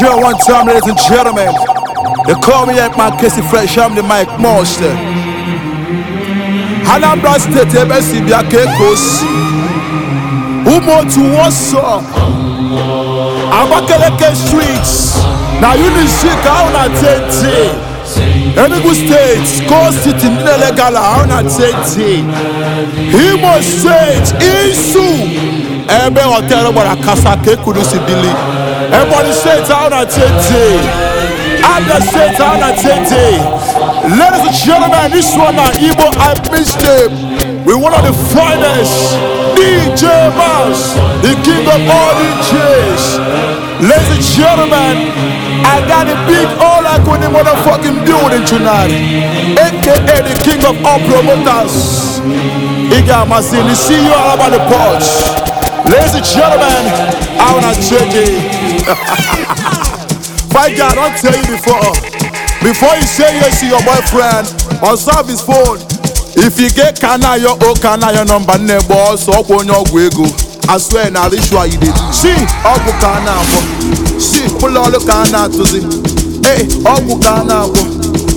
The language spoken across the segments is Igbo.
Joe one time, ladies and gentlemen. They call me like my Casey Fresh, I'm the Mike Monster. Anambra State, MSC kekos Umo to Warsaw. Abakaleke Streets. Now you need sick, I'm not 10 Enugu State, Score City, na Auna Tete, Imo stage Isu, Ebe Hotel, Kasa, Kekudu Sibili. Everybody say it out at 10 I just say it out at 10 Ladies and gentlemen, this one now, Igbo I missed him. We one of the finest DJ Mouse, the king of all DJs. Ladies and gentlemen, I got a big all I could in motherfucking building tonight. AKA the king of all promoters. Iga Masini, see you all about the porch. Ladies and gentlemen, I wanna check it. My God, I'll tell you before. Before you say yes to your boyfriend, observe his phone. If you get kana your oh kana your number nebo ọsọ ọkwa onye ọgwụ ego. I swear na ritual you dey see Si ọgwụ ka a na-agwọ. Si ọbụla ọlụ ka hey na-atụzi. Ee ọgwụ ka a na-agwọ.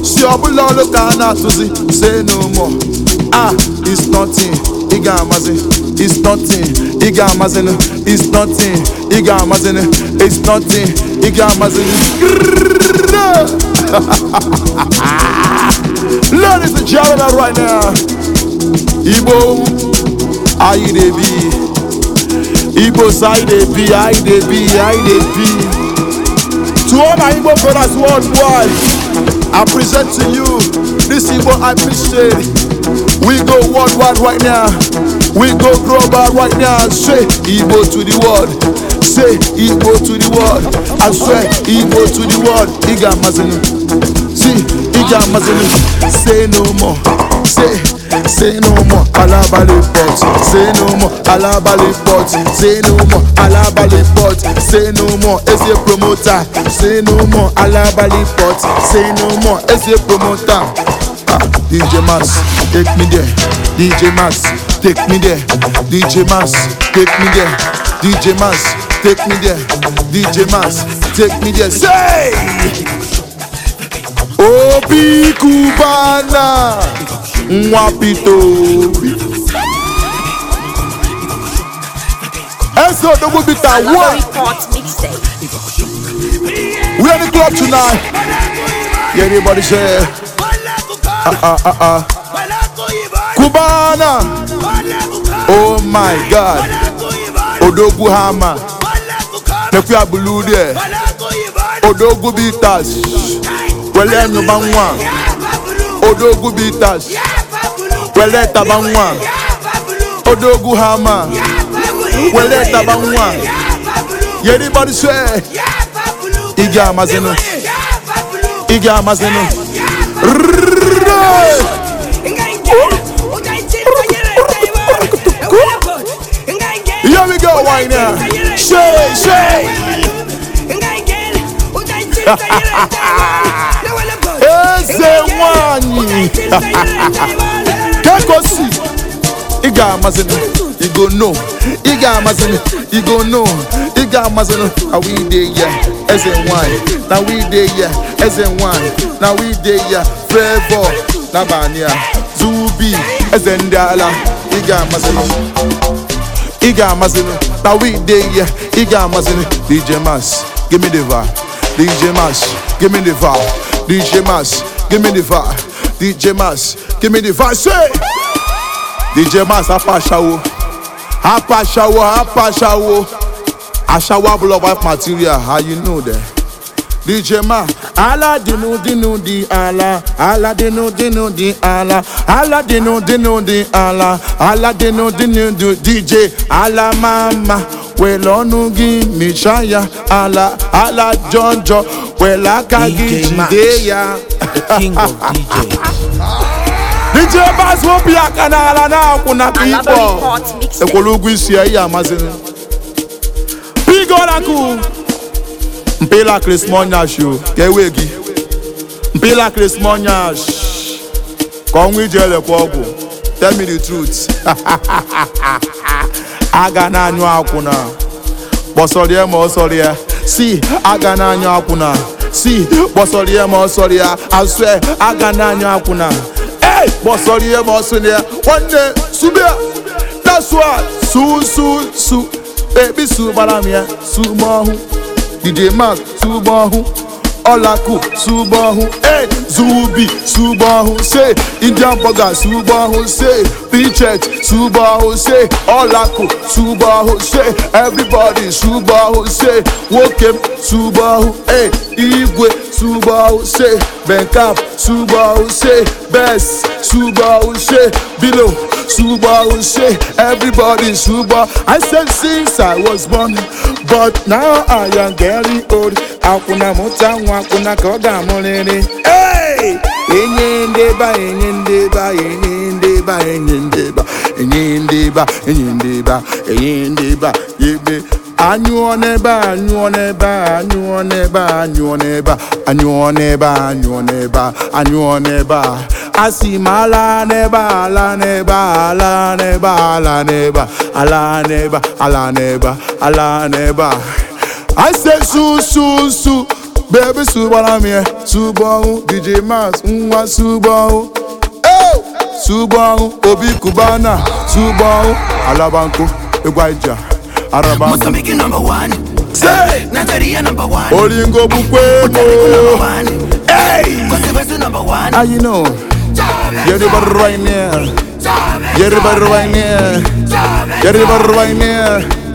Si ọbụla ọlụ ka Say no more. Ah, it's nothing. Ị ga-amazi. it's nothing ị ga-amazin it's nothing ị ga-amazin it's nothing ị ga ladies and gentlemen right now na to all my brothers worldwide i present to you this i appreciate We go worldwide right now. We go global right now. Say Igbo to the world. Say Igbo to the world. I swear Igbo to the world. Iga Mazinu. See, Iga Mazinu. Say no more. Say, say no more. Alabali pot. Say no more. Alabali pot. Say no more. Alabali pot. Say no more. As a promoter. Say no more. Alabali pot. Say no more. As a promoter. Ah, DJ Mass, take me there. DJ Mass, take me there. DJ Mass, take me there. DJ Mass, take me there. DJ Mass, take me there. Say! Obi Cubana, Mwapito. Enzo Double Bita, what? the club tonight. Yeah, say. Uh, uh, uh, kubana Oh my God. Odogwu Hama. Mekwa bulu there. Odogwu Bitas. Wele nyuba nwa. Odogwu Bitas. Wele taba nwa. Odogwu Hama. Wele taba nwa. Everybody swear. E. Igi amazenu. Igi amazenu. Rrrr. Here we go, why now? Shay, Shay. Eze nwanyị kekosi ị no no eze nwanyị na we dey ya eze nwanyị na we dey ya flavor n'abalị a zubi eze ndị ala ị ga-amasịrị ị ga-amasịrị na we dey ya ị ga-amasịrị dj mas give me the vibe dj mas give me the vibe dj mas give me the vibe dj mas give me the vibe say dj mas apashawo apashawo apashawo Ashawa blow wife material, how you know that? DJ Ma, Allah dinu dinu di Allah, Allah dinu dinu di Allah, Allah dinu dinu di Allah, Allah dinu dinu di DJ Allah Mama, well onu gi mi shaya Allah, Allah Jonjo, aka gi jide ya. The king of DJ Bass won't be a canal and now kuna people. The is here, Koraku Mpela krismọnyash o ewe gị Mpela krismọnyash ka ọnwa iji elekwa ọgwụ tell me the truth aga na-anyụ akwụna kpọsọrịa ma si aga na akwụna si kpọsọrịa ma ọsọrịa asụ aga na-anyụ akwụna ei kpọsọrịa ma ọsọrịa nwanne subia that's what su e kpisi gbara na ya t ụgbọ ahụ ji eme atụ ụgbọ ahụ ọlaku sugbo ọhụụ e zuubi sugbo se indian burger sugbo ọhụụ se pichet sugbo se ọlaku sugbo ọhụụ se everybody sugbo se nwoke m sugbo ọhụụ igwe sugbo ọhụụ se benkap sugbo ọhụụ se bes sugbo ọhụụ se bilo sugbo se everybody sugbo i said since i was born but now i am getting old. akwụna mụta nwa akwụna ka ọ ga-amụrịrị enye ndeba enye ndeba enye ndeba enye ndeba enye ndeba enye ndeba enye ndeba ebe anyụọ n'ebe anyụọ n'ebe anyụọ n'ebe anyụọ n'ebe anyụọ n'ebe anyụọ n'ebe anyụọ n'ebe asị m ala n'ebe ala n'ebe ala n'ebe ala n'ebe ala n'ebe ala n'ebe ala n'ebe I say su su su Baby su gbara e. su DJ Max nwa su gbọnwụ su gbọnwụ Obi kubana su gbọnwụ Alabanko egwu Aija Araba Mozambique number one Say Nigeria number one Olingo bukwe mo Hey Kosebesu number one Ah you know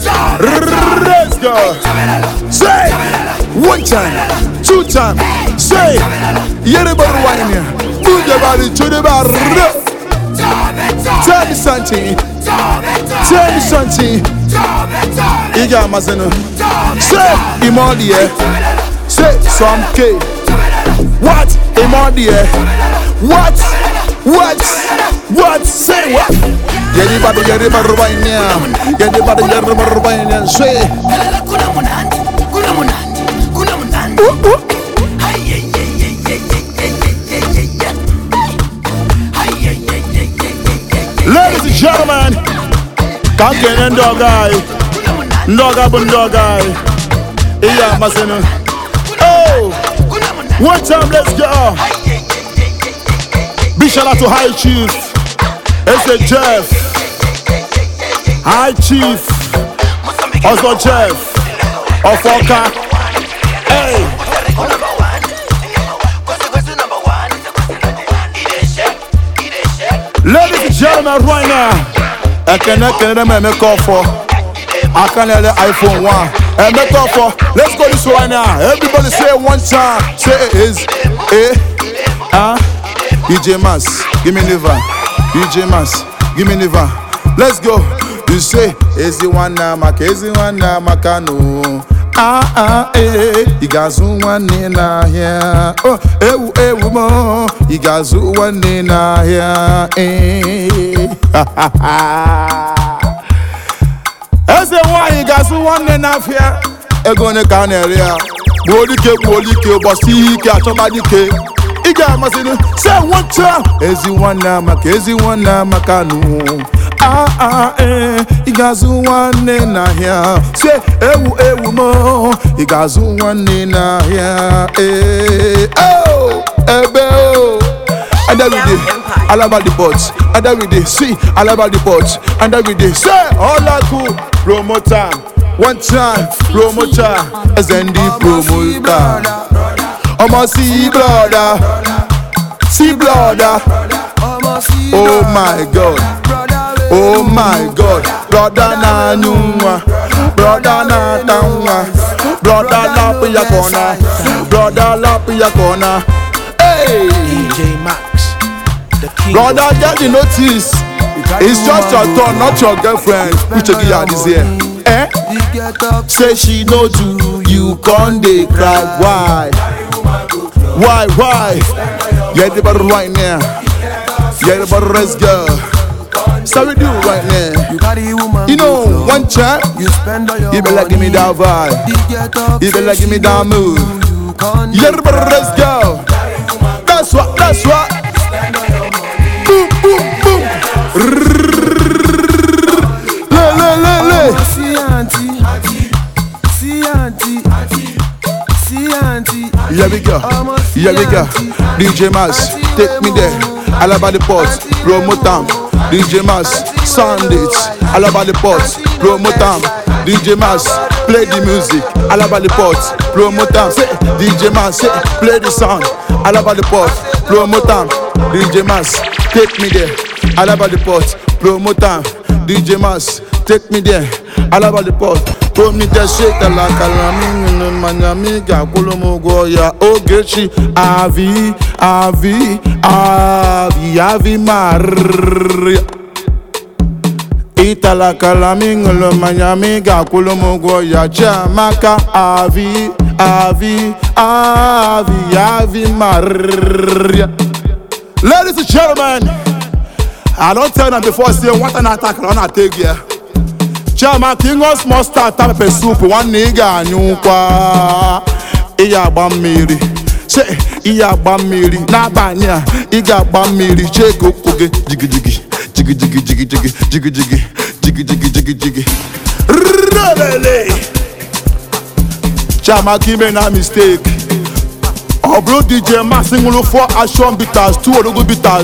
Let's go. Say one time, two time. Say everybody whine here. Move your body to the bar. Tell me something. Tell me something. You got my son. Say Say some K. What Imodie? What? What? What? Say what? yeri bado yeri barubainia yeri bado yeri barubainia swe kuna munandi kuna munandi kuna munandi uh, one time let's go big shout out to high chief it's a jeff High Chief, Ọzọ Jeff, Ọfọka. Hey. Ladies and gentlemen, right now, ekene kenere m emeka ọfọ, aka na-ele iPhone 1, emeka ọfọ, let's go this right now, everybody say one time, say it is, eh, ah, DJ e Mas, give me liver, DJ e Mas, give me liver, let's go. say ezi nwanne maka ezi nwanne amaka nụ aa ah, ah, ee eh, ị ga-azụ nwanne n'ahịa o oh, ewu ewu m ị ga-azụ nwanne n'ahịa ee eh, eze nwanyị ga-azụ nwanne n'afịa ego one ka a na-ere ya gbuo dike gbuo dike ụbọchị ihe ike achọba dike ị ga-amasịrị se nwocha ezi nwanne amaka ezi maka amaka ah ah ee eh, ị ga-azụ nwanne n'ahịa si ewu ewu m ị ga-azụ nwanne n'ahịa ee oh, ebe o oh. adaride alaba the pot adaride si alaba the pot adaride se ọlaku promoter one time eze ndị promoter ọmọ si brother si brother oh my god. oh my god brọda na-anyụ nwa brọda na-ata nwa brọda lapụ ya ka ọ na brọda lapụ ya ka ọ brọda get the notice it's just your turn not your girlfriend uche gị ya adịzi ya eh say she no do you con dey cry why why why yẹ ẹdibọdọ right now yẹ ẹdibọdọ rest girl. Sorry, do right now. You got a woman. You know, one chat. You spend all your You better give me that vibe. You better give me that move. Yeah, let's go. That's what, that's what. Boom, boom, boom. Le, le, le, le. See auntie. See auntie. See auntie. Here we go. Here we go. DJ take me there. the DJ Mass, sound it, all about the pots, DJ Mass, play the music, all about the pots, Say, DJ Mass, say, play the sound, all about the pots, DJ Mass, take me there, all about the pots, DJ Mass, take me there, all promiteshitela kalamnụnụ mmanya ma ị ga-akwụrụ m ụgwọ ya ogechi avi avi avi avi marịrịa ịtala kalama ịṅụrụ mmanya ma ị ga-akwụrụ m ya chiamaka avi avi avi avi marịrịa ladies and gentlemen i don tell na before say nwata na-ata akara ọ na-ata egwu chiama king of mustard ta soup ị ga-anyụkwa ịya agba mmiri che agba mmiri n'abalị a ị ga-agba mmiri chee ụkwụ gị jigijigi jigidigi jigijigi jigijigijigijigi rrrrelele chiamaka ime na mistake ọ dj action 2 ka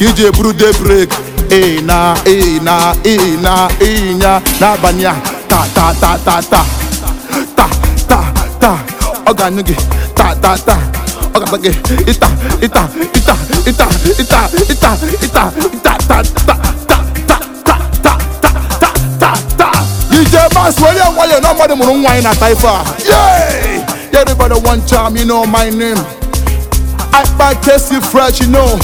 iji ịna ịna ịna ịnya n'abalị a ta ta ta ta ta ta ta ta ọ ga-anyụ gị ta ta ta ọ ga ita ita ita ita ita ita ita ịta ịta ta ta ta ta ta ta ta ta ta ta DJ Bass were nwayọọ na mmadụ mụrụ nwa anyị na taifa a everybody one time you know my name I buy tasty fresh you know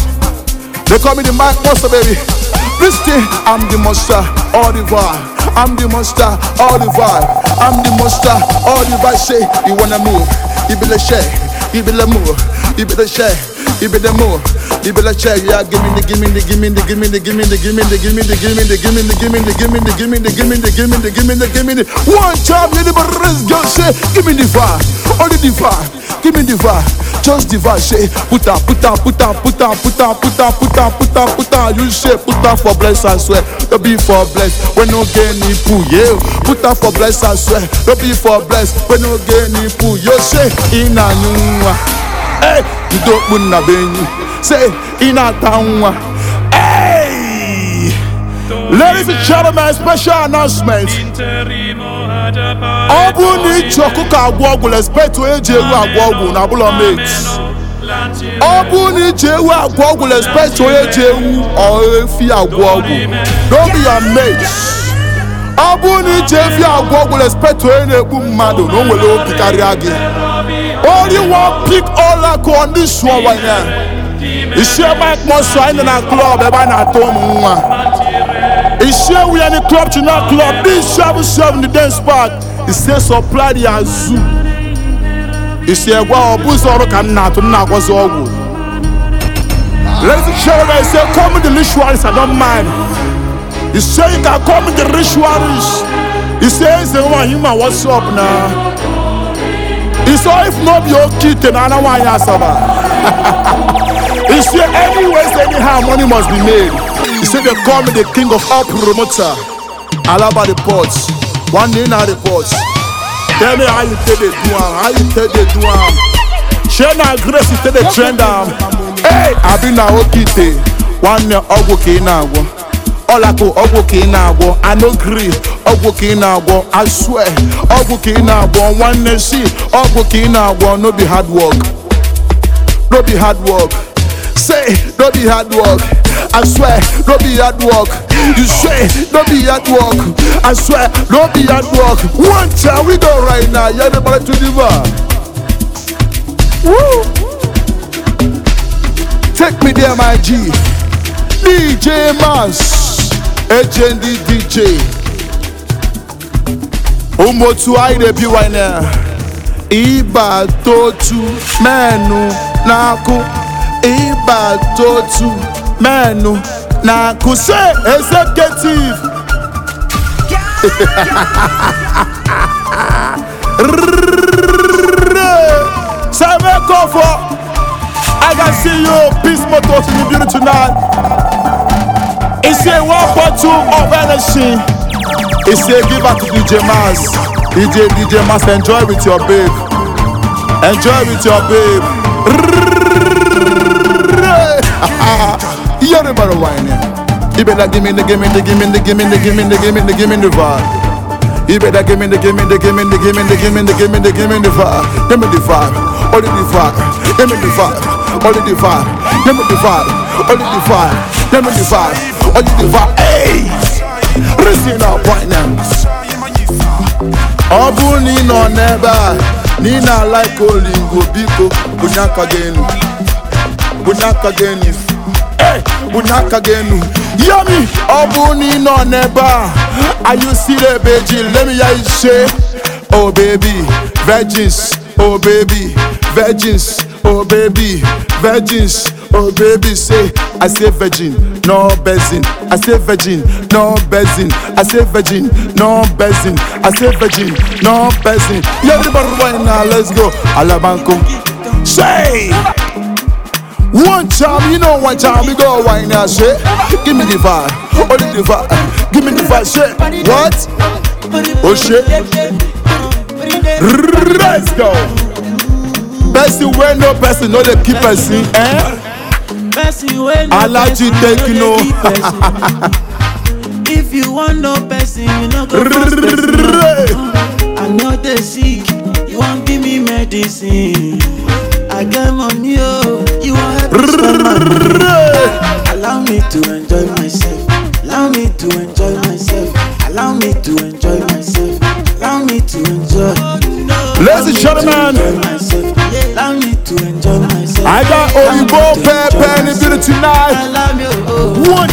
they call me the Mike Monster baby This thing, I'm the monster, all the vibe. I'm the monster, all the vibe. I'm the monster, all the vibe. Say, you wanna move, you be the move, you be Ibe the more, ibe la check, yeah. Give me the, give me the, give me the, give me the, give me the, give me the, give me the, give me the, give me the, give me the, give me the, give me the, give me the, give me the, give me the, give me the. One time, ee okpu nna be enyi si na-ata nwa Ladies and gentlemen, special announcement. ọ bụrụ na iji ọkụkọ agwọ ọgwụ respect onye ji ewu agwọ ọgwụ na abụlọ mate ọ bụrụ na iji ewu agwọ ọgwụ respect onye ji ewu efi agwọ ọgwụ don't be your mate ọ bụrụ na iji efi agwọ ọgwụ respect onye na-ekpu mmadụ na o nwere obi karịa gị Only one pick all I go on this one right now. Isi ebe akpọsọ anyị na klọb ebe a na-atụ ụmụ nwa. Isi ewu ya ni klọb chi na dis dị isi abụ si ọbụ dance park. is sọpla supply azụ. Isi is a ọ bụ ụzọ ka m na-atụ m na-agwọzi ọgwụ. Ladies and gentlemen, say come the rituals I don't mind. He say you can come the rituals. He says the one you what's up now. Oh, if no be okite na ana anya asaba say any ways anyhow money must be made he say they call me the king of all promoter alaba the port one day na the port tell me how you take dey do am how you take dey do am shey na grace you take dey trend am um. hey abi na okite one nwanne ọgwụ ka ị na-agwọ ọlakụ ọgwụ ka ị na-agwọ i no gree ọgwụ ka ị na-agwọ I swear ọgwụ ka ị na-agwọ nwanne si ọgwụ ka ị na-agwọ no be hard work no be hard work say no be hard work I swear no be hard work you say no be hard work I swear no be hard work one time we go right now yeah everybody to Woo! Take me there, my G. DJ Mans, HND DJ. ụmụ otu anyị na wine ịbata otu menụ na-akụ ịbata otu menụ na-akụ se executive Samekofo I can see you peace motor in the beauty tonight. It's a one of energy. It's a give back to DJ Mas. DJ DJ Mas, enjoy with your babe. Enjoy with your babe. You're the better whining. You better give me the give me the give me the give me the give me the give me the give me the vibe. You better give me the give me the give me the give me the give me the give me the give me the vibe. Give me the vibe. the vibe. Give me the vibe. the vibe. Give me the vibe. the vibe. Give me the vibe. the vibe. Hey. kwere si na appointment ọ bụrụ na ị nọ n'ebe a na ị na-alaik olingo biko bunye aka gị enu bunye aka gị enu bunye aka gị enu yami ọ bụrụ na ị nọ n'ebe a ayụsiri ebe ji lemi ya ise oh baby virgins oh baby virgins oh baby virgins oh baby say i say virgin no bezin. I say virgin, no bezin. I say virgin, no bezin. I say virgin, no bezin. Yeah, everybody right now, let's go. Alabanco. Say. One time, you know, one time we go right now, say. Give me the vibe, only oh, the vibe. Give me the vibe, say. What? Oh shit. Let's go. Bestie, where no person, no the keep person, eh? person wey no person no dey give person if you wan know person you no go pass person i no dey sick you wan give me medicine i get money o oh. you wan help me spend my money allow me to enjoy myself allow me to enjoy myself allow me to enjoy myself allow me to enjoy. ladies and gentlemen. allow me to enjoy myself. I got Oyibo Pepe and it's it tonight. One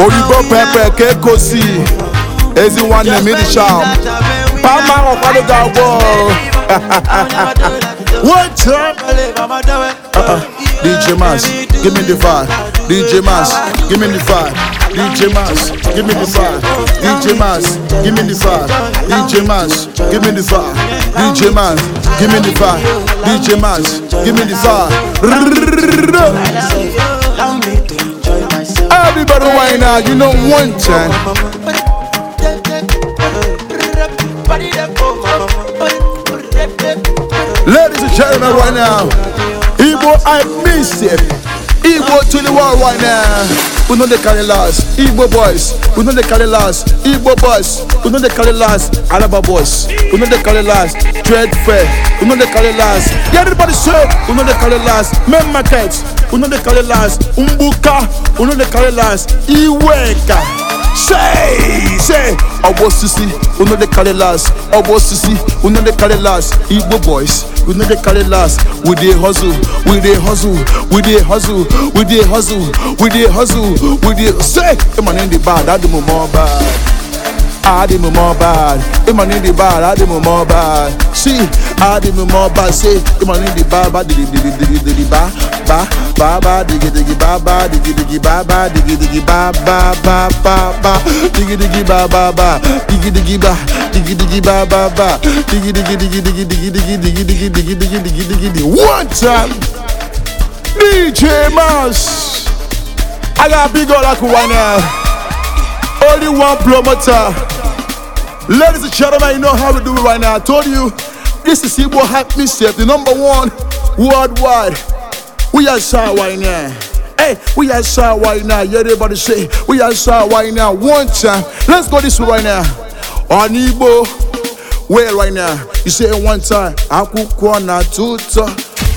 Oyibo Pepe Kekosi. Ezi one m ịdị sham. Pama ọkwado ga-agwọ. One time. DJ Mas, give me the vibe. DJ Mas, give me the vibe. DJ Mas, give me the vibe. DJ Mas, give me the vibe. DJ Mas, give me the vibe. DJ give me the vibe. DJ give me the vibe. Everybody you know one time. Ladies and gentlemen, right now, Igbo, I miss it. Igbo to the world right now. We know they carry last. Igbo boys, we know they carry last. Igbo boys, we know they carry last. Alaba boys, we know they carry last. Dread fair, we know they carry last. Yeah, everybody say, we know they carry last. Men markets, we know they carry last. Umbuka, we know they carry last. Iweka. say say ọgbọ osisi we dey carry last ọgbọ osisi we dey carry last igbo boys we dey carry last we dey hustle we dey hustle we dey hustle we dey hustle we dey hustle we dey say emmanuel dey bad adumo mo bad. I did more bad. The the bad, I did more bad. See, I did more bad. Say, the money the bad, bad, ba, ba, ba, ba, ba, ba, diggy, ba, ba, diggy, diggy, ba, ba, ba, ba, ba, ba, ba, ba, diggy, ba, diggy, diggy, ba, ba, ba, diggy, One time, DJ Mouse. I got big only one promoter. Ladies and gentlemen, you know how we do it right now. I told you, this is Igbo Hype Mischief, the number one worldwide. We are shy right now. Hey, we are shy right now. Yeah, everybody say, we are shy right now. One time. Let's go this way right now. On Igbo, where right now? You say one time. Akwụkwọ na tuto,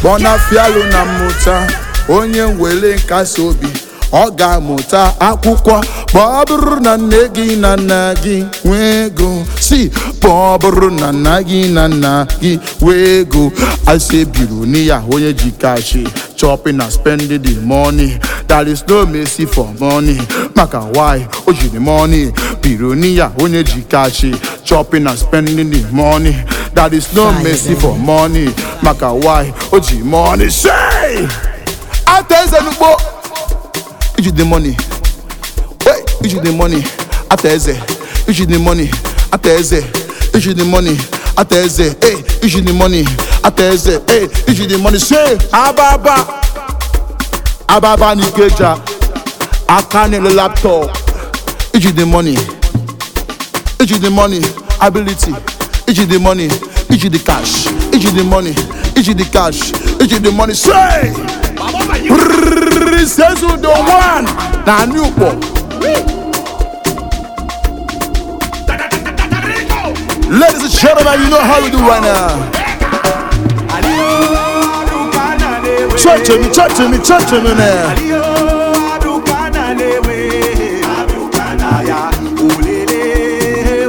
bona fialu na muta, onye nwere nkasi obi. ọ ga-amụta akwụkwọ ma ọ bụrụ na nne gị na nna gị nwee ego si ma ọ bụrụ na nna gị na nna gị nwee ego asebiri na ya onye ji kashi chopping na spending the money there is no mercy for money maka why o jiri money biri na ya onye ji kashi chopping na spending the money there is no mercy for money maka why o ji money say ata eze n'ugbo Iji the money. Wait, iji the money. Ata eze. the money. Ata eze. the money. Ata eze. the money. Say ababa. Ababa Aka nele laptop. Iji the money. Iji the money. Ability. the money. the cash. the money. iji the cash iji the money say the one na anị ụkpọ ladies and gentlemen you know how we do right now me me me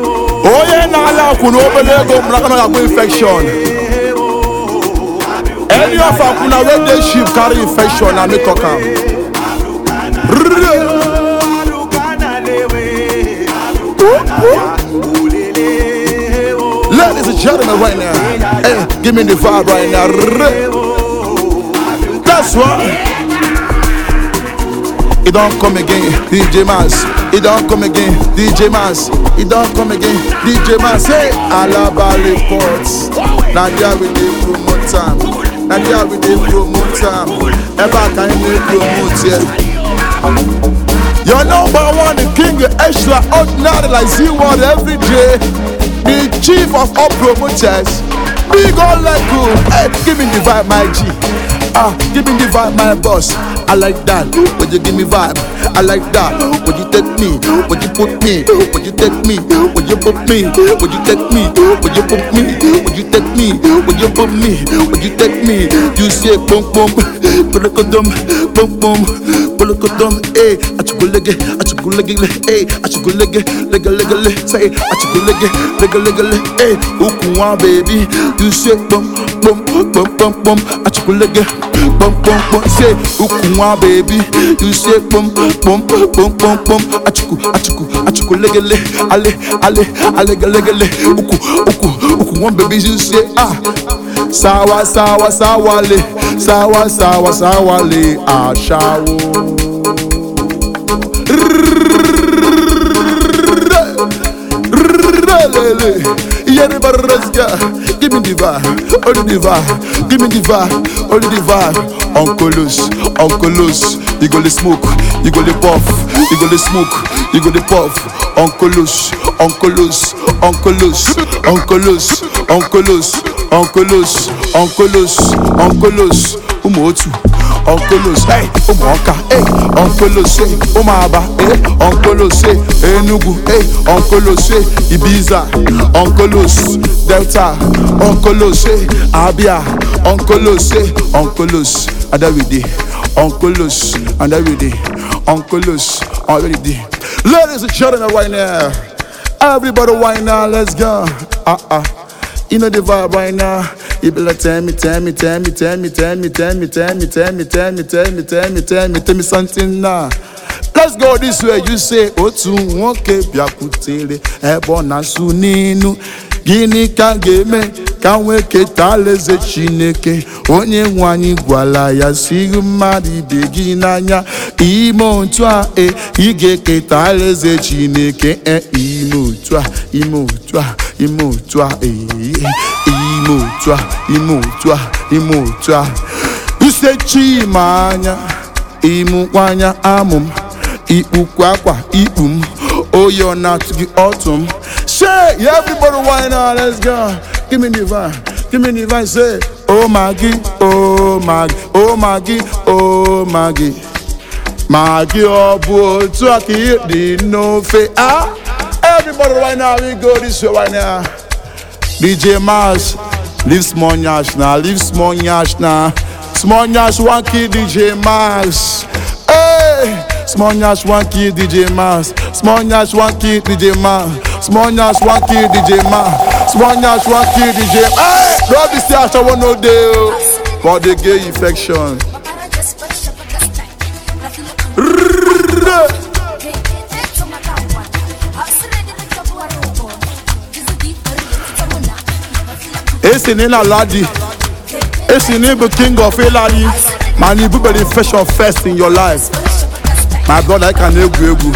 oh, na-ala infekshọn any of una wey dey sheep carry infection na me talk am ladies and gentlemen right now hey, give me the vibe right now that's why e don come again dj mans e don come again dj mans e don come again dj mans hey alaba reports na there we dey promote am. na ndị we bụ promote am um, ebe a ka anyị na-epromote ya Your number one king extraordinary like Z1 every day The chief of all promoters Big old Lego Hey, give me the vibe my G Ah, give me the vibe my boss I like that, but you give me vibe I like that. When you take me, when you put me, when you take me, when you put me, when you take me, when you put me, when you take me, you put me, you take me, you say boom boom, put a condom, boom boom. kolokoto m e achụgolege achụgolegele e achụgolege legelegele say achụgolege legelegele e ukwu nwa bebi nse kpọmkpọmkpọmkpọm achụgolege kpọmkpọmkpọm say ukwu nwa bebi nse kpọmkpọmkpọmkpọm achụkụ achụkụ achụgolegele ale ale alegelegele ukwu ukwu ukwu nwa bebi nse a sawa sawa le sawa sawa sawale aṣawo. Give me only give me only Uncle you go dey puff, you go dey smoke, you go dey puff. Onkelos, onkelos, onkelos, onkelos, onkelos, onkelos, onkelos, onkelos, otu. Onkelos, hey, ụmụ ọka, hey, onkelos, hey, ụmụ aba, hey, Enugu, hey, onkelos, Ibiza, onkelos, Delta, onkelos, Abia, onkelos, hey, onkelos, Adawide, onkelos, Uncleus already did. Ladies and gentlemen, right now, everybody right let's go. Uh uh. You know the vibe right now. You tell me, tell me, tell me, tell me, tell me, tell me, tell me, tell me, Let's go this way. You say, Otu nwoke ebe na gịnị ka ga-eme ka nwee keta alaeze chineke onye nwe anyị gwara ya si mmadụ ibe gị n'anya ime otu a e ị ga-eketa alaeze chineke e ime otu a ime otu a ime otu a e ime otu a ime otu a ime otu a anya ịmụkwa anya amụ m ikpukwa akwa ikpu m oyi ọ na m Shake, yeah, everybody wine on, let's go. Give me the vine, give me the vine, say, Oh Maggie, oh Maggie, oh Maggie, oh Maggie. Maggie, oh boy, talk it, the no fe, ah. Everybody right now, we go this way right now. DJ Mars, leave small nyash now, leave small nyash now. Small nyash, one key, DJ Mars. Hey, small nyash, one key, DJ Mars. Small nyash, one key, DJ Mars. small nyash wan kill dj man small nyash wan kill dj hey no be say asawo no dey o for the gay infection. esi ni na esi ni be king of ilani man ibu be the fashion first in your life my brother I can egwu egwu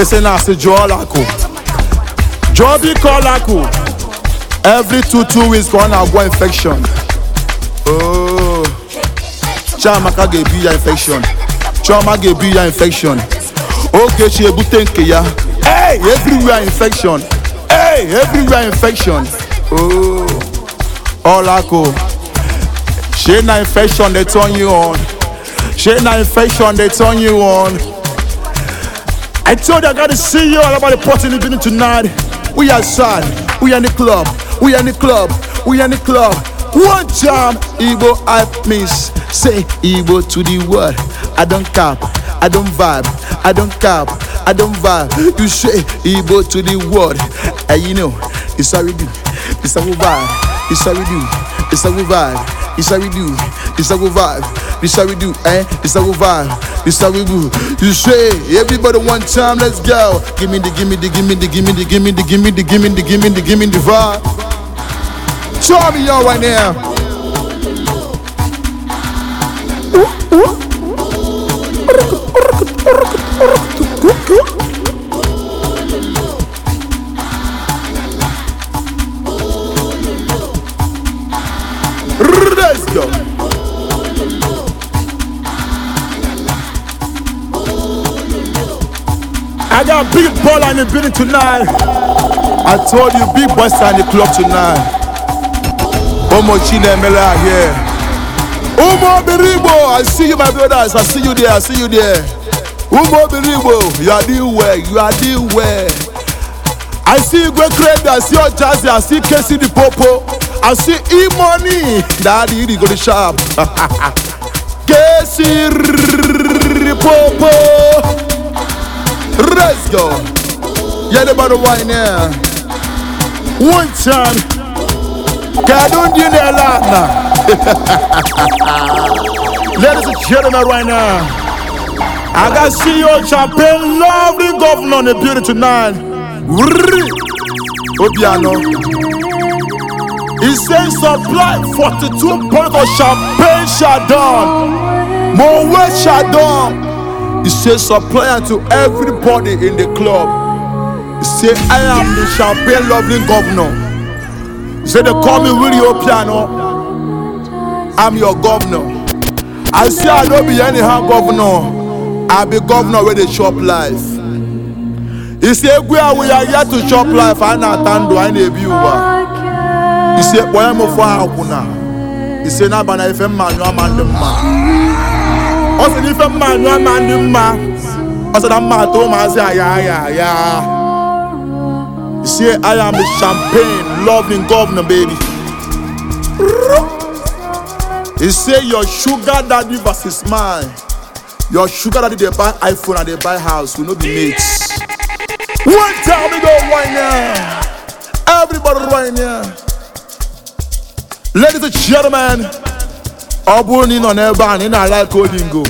esi na asi Joby Kolaku. Every two two weeks ka go infection. Oh. Chiamaka ga-ebi ya infection. Chioma ga-ebi ya infection. Ogechi oh, ebute nke ya. Hey, everywhere infection. Hey, everywhere infection. Oh. Olaku. Shey na infection dey turn you on. Shey na infection dey turn you on. I told you I gotta see you all about the party in the evening tonight. We are Sean, we are in the club, we are in the club, we are club. One jam, Igbo hype miss. Say Igbo to the world. I don't cap, I don't vibe, I don't cap, I don't vibe. You say Igbo to the world. And you know, it's how we vibe, it's This how we vibe. This how we do, eh? This how we vibe. This how we do. You say, everybody one time, let's go. Give me the, give me the, give me the, give me the, give me the, give me the, give me the, give me the, give me the vibe. Show me y'all right now. Ooh, ooh. I got big baller in the building tonight. I told you, big boys are in the club tonight. Omo Chinemela here. Umo Biribo, I see you, my brothers. I see you there. I see you there. Umo Biribo, you are doing well. You are doing well. I see you go crazy. I see your jazzy. I see Casey the Popo. I see E Money. Daddy, you go to shop. Casey Popo. Let's go. Yeah, everybody wine here. One time. God don't do ha ha lot now. Ladies and gentlemen, right now, I got CEO Champagne, lovely governor on the beauty tonight. Obiano. He says supply 42 points of champagne Chardon. Moet Chardon. He says supply to everybody in the club. He say I am the champagne loving governor. He say they call me Willie I'm your governor. I say I don't be anyhow governor. I be governor wey dey shop life. He say we are are here to shop life. I na tando I na ebi uwa. He say boy for aguna. He say na bana ife mmanyo amandemma. ọ sị na ife mma anyụ ama ndị mma ọ sị na mma atọ ụmụazị aya aya aya say I am champagne loving governor baby he say your sugar daddy versus mine your sugar daddy dey buy iphone and dey buy house we no be mates wait time we go right now everybody right now ladies and gentlemen. ọ bụrụ na ị nọ n'ebe a na ị na-alaịka olingo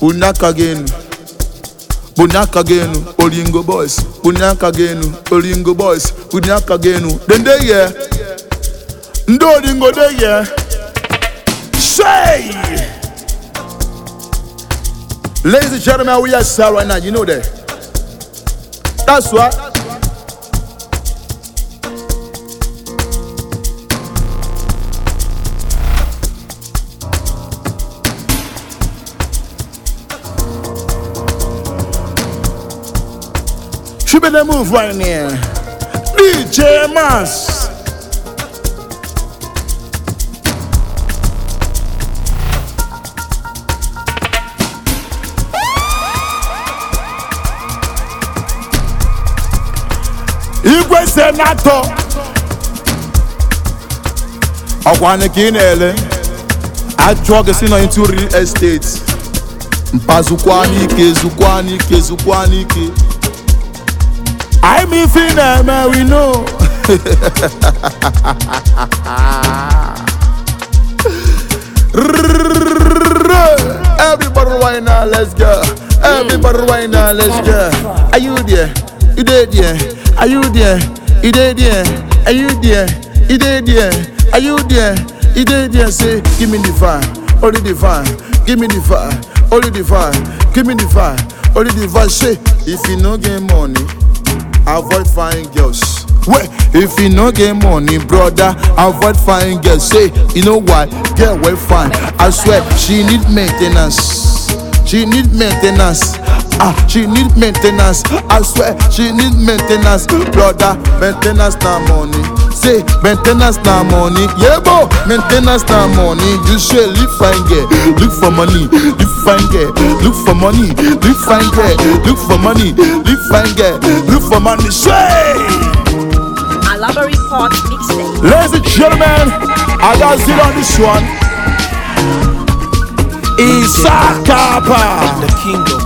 bunye aka gị enu bunye aka enu olingo aka enu olingo aka enu dende ye ndị olingo de ladies and gentlemen we are sir now you know that that's She better move right Igwe Senator. ka ị na-ele ajụọ gị si na into real estate mpazukwa n'ike zukwa n'ike zukwa n'ike I'm ifin na we know. Everybody right now, let's go. Everybody right now, let's go. Are you there? You there, there? Are you there? You there, there? Are you there? You there, there? Are you there? You there, there? Say, give me the fire, only the fire. Give me the fire, only the fire. Give me the fire, only the fire. Say, if you no get money. avoid fine girls Well, if you no get money, brother, avoid fine girls. Say, you know why? Girl, well, fine. I swear, she need maintenance. She need maintenance. Ah, she need maintenance. I swear, she need maintenance. Brother, maintenance na money. Say, maintenance na money. Yeah, bro, maintenance na money. You should live fine girl. Look for money. Live fine girl. Look for money. Live fine girl. Look for money. Live fine girl. Look for money. Say. Alabari Park mixtape. Ladies and gentlemen, I got it on this one. Isakapa. The kingdom.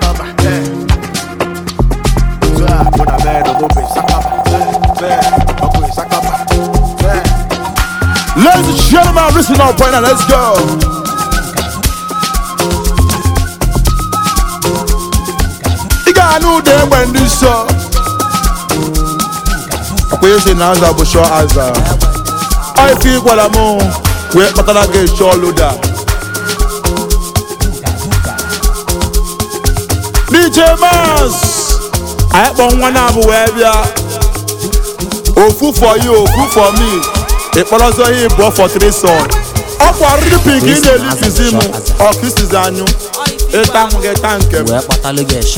Ladies and gentlemen, listen up right now. Let's go. Ị ga-anụ ụda egbe ndị nsọ. Ọkwa esi na aza bụ chọọ aza. Ọ ife ị gwara m wee kpatara gị chọọ loda. DJ Mars, anyị kpọ nwa na-abụ wee bịa. Ofu for you, ofu for me. ịkpọrọzọ ya ịbụọ fọtrison ọ bụ arịrị ị na-elitizi m ọkụsizi anyụ ịta m nke m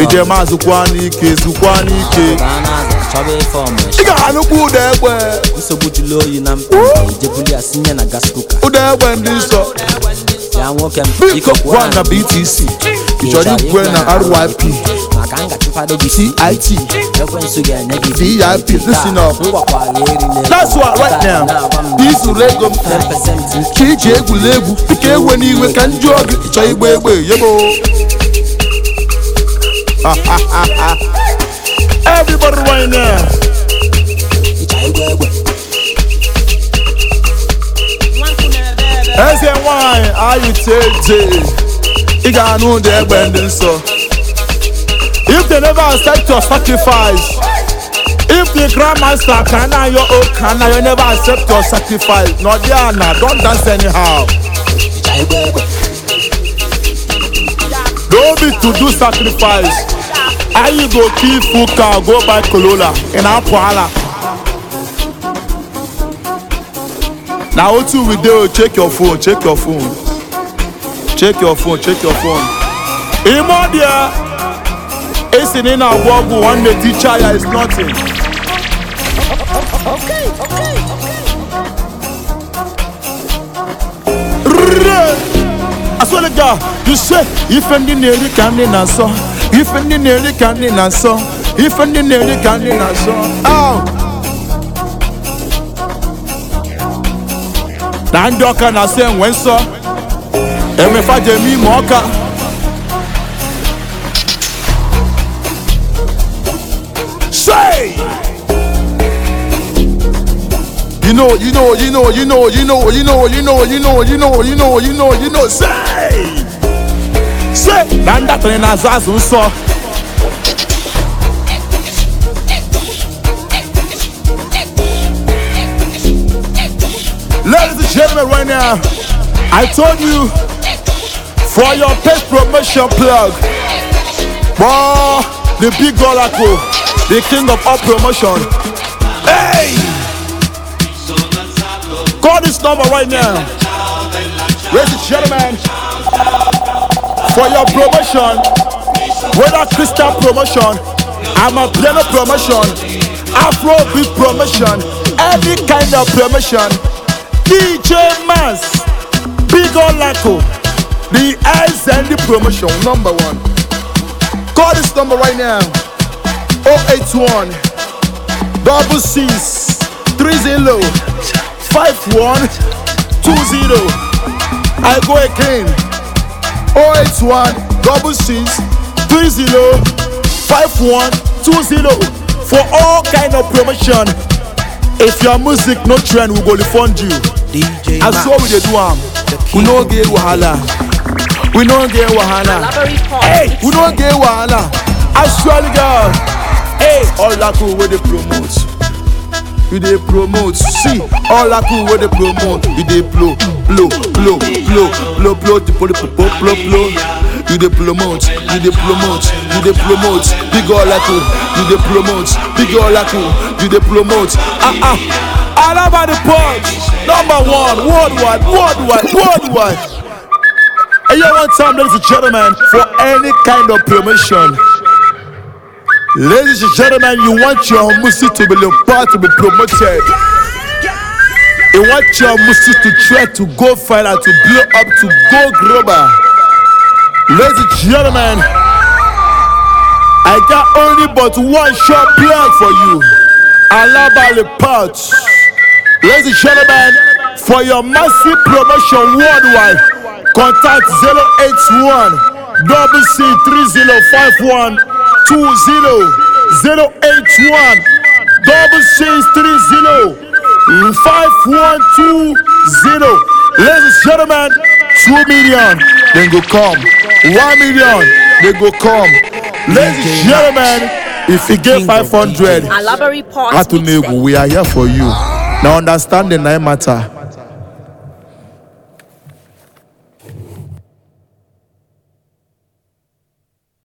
ije m azụkwa n'ike zụkwa n'ike ị ga-anụkwu ụda egbe ụda egbe ndị nsọ biko gwa na BTC ị igwe na ryp CIT, VIP, listen up. That's what right ego Ka iji egwuregwu dịka ewe n'iwe ka ndị oge chọọ egbe yebo. Everybody right now. Eze nwanyị ayụ ị ga-anụ ụdị egbe ndị nsọ if they never accept your sacrifice if the grandmaster can na your own can na you never accept your sacrifice n'ọdị ana don dance anyhow don't be to do sacrifice ayi go kill fuka go buy corolla in na-apụ ala na otu we dey check your phone check your phone check your phone check your phone ime ọ esi na ị na-agwọ ya is nothing asọlịga ise ife ndị na-eri ka ndị na-asọ ife ndị na-eri ka ndị na-asọ ife ndị na-eri ka ndị na-asọ na ndị ọka na-asọ enwe nsọ emefa jemi ma ọka say you know you know you know you say na ne na Ladies and gentlemen, right now, I told you for your page promotion plug. Wow, the big oracle, the king of all promotion. Hey! Call this number right now. Ladies and gentlemen, for your promotion, whether Christian promotion, I'm a piano promotion, Afro beat promotion, any kind of promotion, DJ Mass, Big Olaco. The air and the promotion, number one. Call this number right now 081 double six I go again 081 double six for all kind of promotion. If your music no trend, we go refund you. DJ we dey do am. We no get wahala. we no get wahala hey we no get wahala actually girl hey olaku wey dey promote you dey promote see olaku wey dey promote you dey blow blow blow blow blow blow blow blow blow blow blow you dey promote you dey promote you dey promote big olaku you dey promote big olaku you dey promote ah ah all about the punch number one worldwide worldwide worldwide. And you want time, ladies and gentlemen, for any kind of promotion. Ladies and gentlemen, you want your music to be the part to be promoted. You want your music to try to go further, to blow up, to go global. Ladies and gentlemen, I got only but one short plug for you. Alabali Parts. Ladies and gentlemen, for your massive promotion worldwide. Contact 081 WC305120 081 WC305120 Ladies and gentlemen, 2 million, then go come. 1 million, then go come. Ladies and gentlemen, if you get 500, Atun we are here for you. Now understand the nine matter.